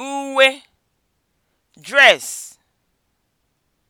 uwe (dress)